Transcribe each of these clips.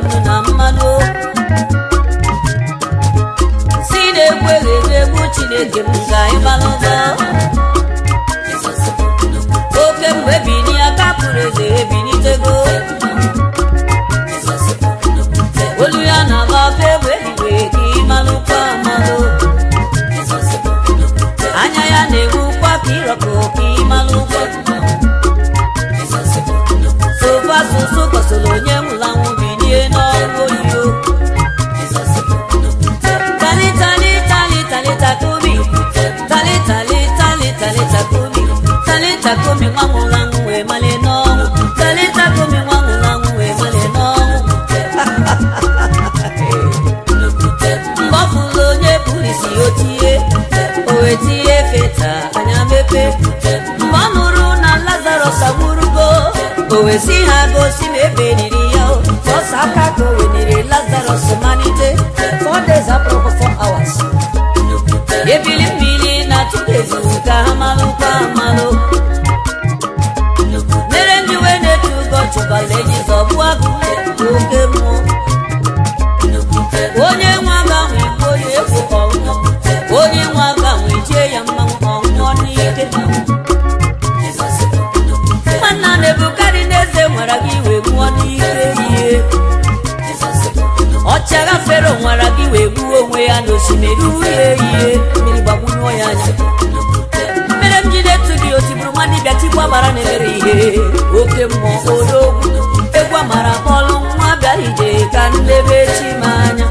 nnu na mmanụ si na-egwu eghedu chineke m ka anyị malụta oke mgbe bini aka pụrụ eze ebinitego olu ya na-agba afọ egbe ehiwe ka ịmalụkwa amalụ anya ya na-enwukwa ka ịrọkọ ka ịmalụkwa Sofa asụsụ kọsoro onye nwe takomi nwanwụ mali n'ọnwụ kali takomi wee n'ọnwụ mgbe ọ onye bụrụ isi o tie feta anya mepe mgbe na lazarus o ha gosi na ebe ya ọsọ aka ka o wenere lazarus malite four days apụrụ ebili mmiri na ha Fero nwara gị wee gbuo onwe ya n'osimiri uhie ihe mmiri gbagbunyụọ ya anya mere m jide etu gị otiburu nwa dibịa tikwa mara na-emere ihe oke mmụọ odogwu egwu amara kpọlụ nwa bịara ije ka nlebe chi m anya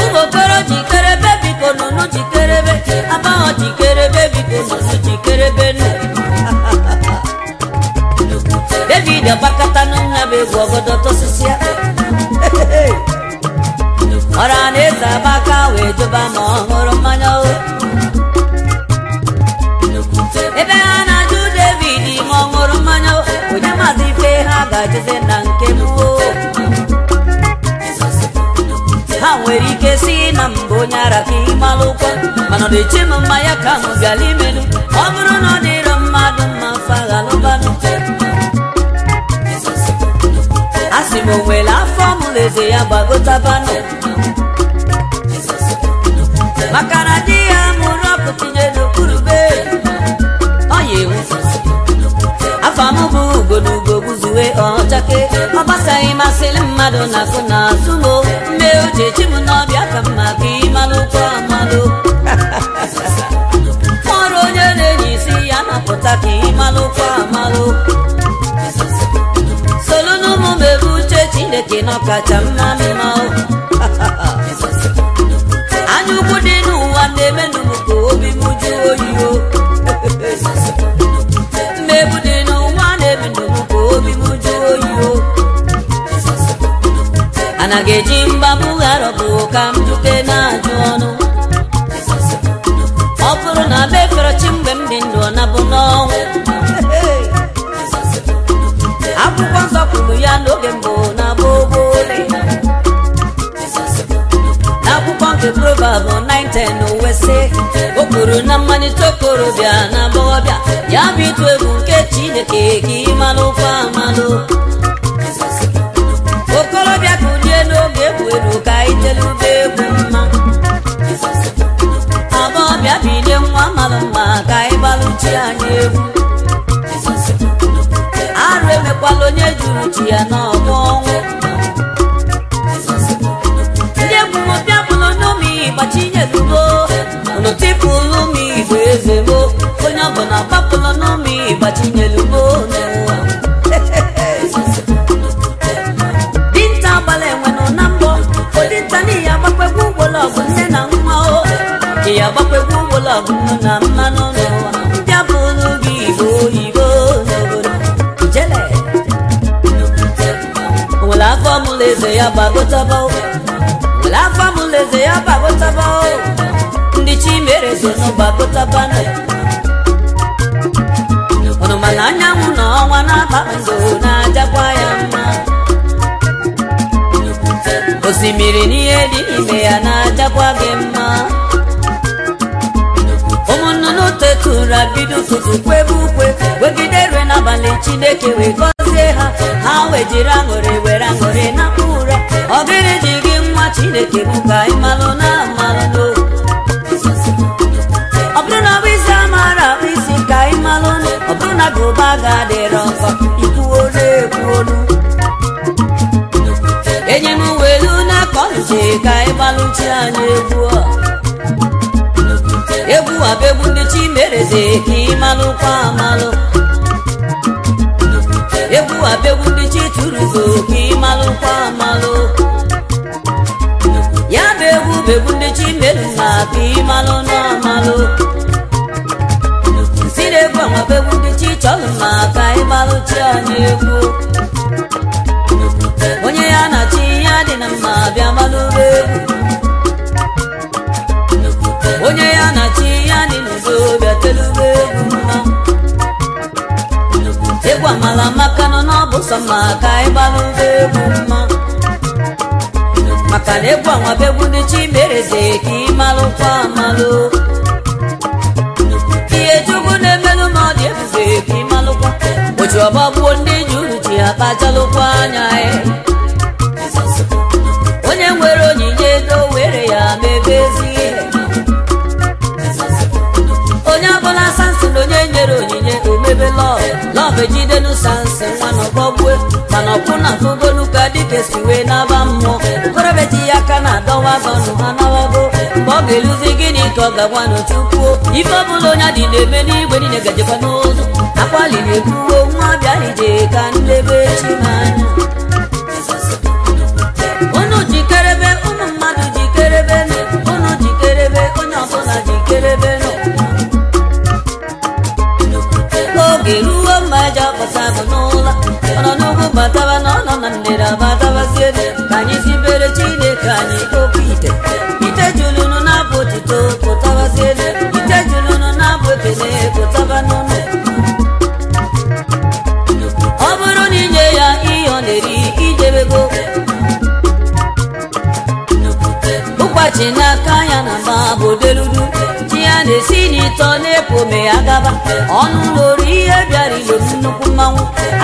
ụmụokoro jikerebe biko nụnụ jikerebe abaghọ jikerebe biko nụnụ jikerebe nụ david agbakọta na nna bụ egwu ọgọdọ tọsisi ya ebe ha na-ajụ David ma ọ ṅụrụ mmanya onye maazị ife ha ga-ajụzi na nke mbụ ha nwere ike si na mbụ onye ara ime ịmalụ ụkwụ mana ọ na ka ahụ bịala imelu ọ bụrụ na ọ na dịrọ mmadụ ma mma faghalụbanụ a sị m o nwere afọ mụrụ eze ya gbagotabanụ maka na ya mụrụ ọkụ tinye n'okpuru be ọya m bụ ugo na ugo gbuzuwe ọchake ọ gbasaghị mmadụ na akụ na azụ m mbe o m n'ọbịa ka mma ka ịmalụ ụkwụ amalụ ọrụ onye na-enye isi ya napụta ka ịmalụ ụkwụ amalụ solu n'ụmụ m ebe chineke na ọkacha mma m mana ga-eji mgbabughara bụ ka m jute na-ajụ ọnụ ọ bụrụ na be fere chi mgbe m dị ndụ ọ nabụ n'ọnwụ akwụkwọ nsọ kwuru ya n'oge mbụ na gbogbo n'akwụkwọ nke Proverbs 9:10 uwe sị o kwuru na mmalite okorobịa na agbọghọbịa ya bụ ịtụ egwu nke Chineke ka ị malụkwa amalụ okorobịa ka kwuru ka itelube egwu mma aba ọbịa bide nwa mara mma ka anyị gbaruchi anyị egwu arụ emekwala onye juru ji ya n'ọdụ ọnwụ ndị egwu mụbịa gbachi n'omi gbachinyerugbo mmadụ ya gbakwego ụgbọla bụnụ na mmanụ ndị abụrụ gị igbo oyibo n'obodo jele nwere afọ mụla eze ya gbagotaba nwere afọ mụla eze ya gbagotaba ndị chimere so n'ụgbagotaba ọnụmala anyanwụ na ọnwa na-abakpazo na-ajakwa ya mma osimiri n'ihe dị ime ya na-ajakwa gị mma zuru bido ụtụtụ kwebe ukwe wegide rue n'abalị chineke wee gọzie ha ha wee jiri aṅụrị were aṅụrị napụ ụra ọ gịrị ji gị nwa chineke bụ ka ị malụ na amalụ ọ bụrụ na isi amaara akpụ isi ka ị malụ ọ bụrụ na gị ga ga-adịrọ nkọ ituworo egwuolu enye m welu na ka ka ị gbalụchi anyị a. a bụ egwu ndị chimereze ka ị amalụ ya bụ egwu ndị chi turugo amalụ ya bụ egwu bụ egwu ndị chimereze ka n'amalụ bụ egwu ndị chi chọrọ anyị egwu onye ya na chi ya dị na mma bịa malụrụ egwu egwu amala maka nọ ọ ma sọ maka ịgbalụ egwu mma maka na egwu anwabụ egwu ndị chimereze ka ịmalụkwa amalụ ihe chukwu na-emelụ ma ọ dị ebuze ka ịmalụkwa ọgba ọgbagbuo ndị ji uru ji akpajalụkwa anya ya e. n'ọkwụ na ntụgolu ka dike si wee n'aba mmụọ okorobịa ji ya aka na-adọwa banụ ha nawago mgbe ọ ga-eluzi gịnị ka ọ ga-agwa n'ochukwu ife ọ bụla onye adị na-eme n'igwe niile gajekwa n'ụzụ akwaliri ebuwo nwa bịarije ka nlebe chi n'anya nyere amadabasi ede ka anyị sibere Chineke anyị okwu ite ite julunu na-abụ otuto pụtabasi ite julunu na-abụ ekele pụtaba n'ụlọ ọ bụrụ na inye ya ihe ọ na-eri idebego na n'aka ya na mba bụ deludu chi ya na-esi n'ịtọ na-epu ome ya gaba ọnụ ụlọ ihe bịara ilo nnukwu mmanwụ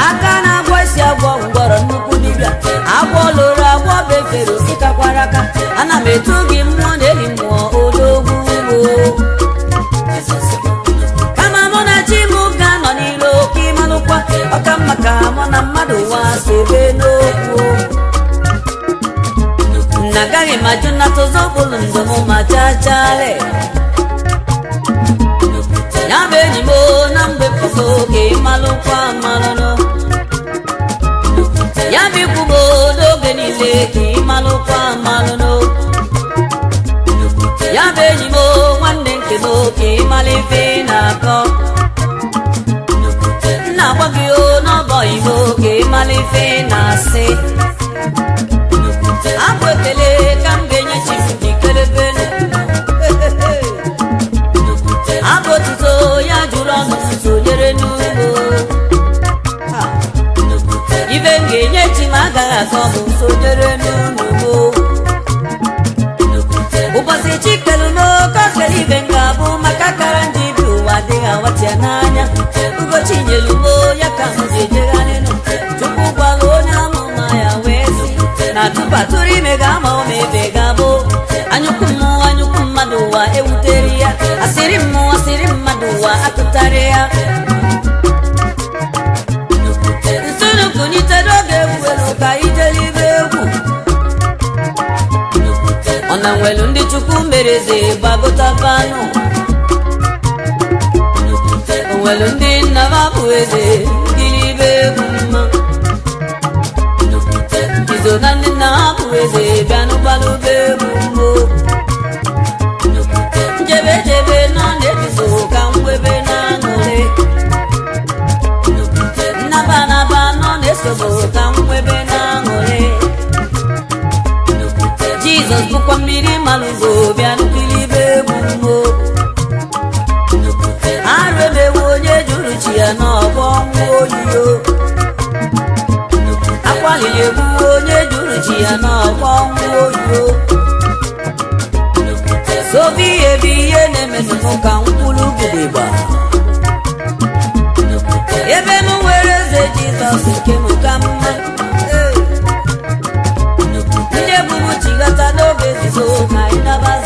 aka na-agwa isi agwọ ngwọrọ nnukwu dibịa agwọ loro agwọ befere osikakwara aka ana m etu gị mmụọ na-eri mmụọ odogwu kama mụ na chi m ka nọ n'iro oke ịmalụkwa ọka mma ka mụ na mmadụ wa sebe n'okwu na agaghị m ajụ nnata ụzọ bụlụ m ma chachale ya bụ enyi m na mgbe pụta oge ịmalụkwa amalụnụ ya bụ ikwugo n'oge niile ka ị malụkwa ya bụ enyi m nwanne nke m ka ị mara na-akọ nna gwa o n'ọbọ ibo ka ị na-asị asịrị mmụ asịrị mmadụ ụwa akụtara ya nsonukunitere oge egwuelu ka ijelibe egwu ọ na nwelu ndị chukwu mereze gbagotabanụ onwelu ndị nna m abụ eze gilibe egwu mma izo na ndị nna ha bụ egwu mbụ jizọs bụkwa mmiri malụgo bịa nkiribe na arụ emewu onye jụrụ chi ya n'ọbọ nwa oyiyo akwaghị egbuwe onye jụrụ chi ya n'ọbọ nwa oyio. obi ihe bụ ihe na-emetụụ ka mkpụrụ ugegba ebe m nwere eze jizọs nke m ka mma ndị ebubu chigata n'oge nzuzo ka anyị nabata